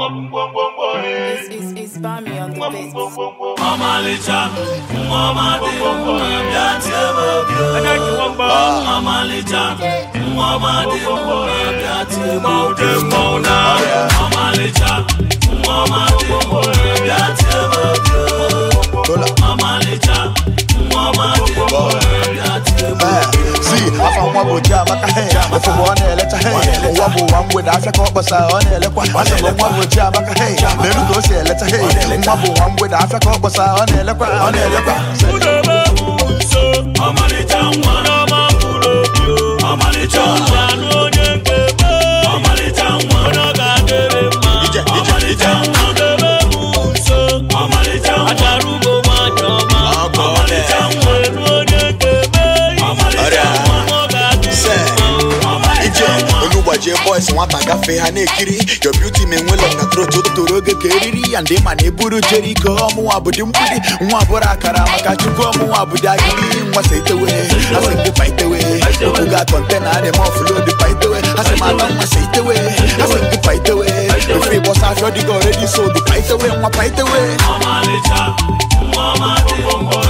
It's, it's, it's Bami on the beats. Mama Licha, Mama de, Mama Licha, Mama de, Mama de, Mama Licha, Mama de, Mama Licha, Mama de, Mama bo jama ka he ofu bo na ele ta he owa bo wa ngwe da asa ka obosa o na ele kwa jama ka meru ko si ele ta he nwa bo wa ngwe da asa ka obosa o na ele ji boys a gafee ha a ekiri your beauty me nwe long a throat otoro oge ka eriri ya ndị ma na eburu jeriko ọmụnwa bụdị mgbidi nwa bụrụ akara maka chukwu ọmụnwa bụdị agidi nwasa itewe asị ndị pa itewe okwu ga kọntena adị m ọfụlo dị pa itewe asị m ata nwasa itewe asị ndị pa itewe ofe ịgbọsa afịọ dịgo oredi so We pa fight nwa Mama itewe mama nwa ọmadị